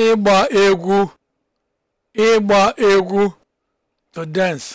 ịgba egwu ịgba egwu to dance